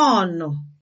nọọ̀nụ̀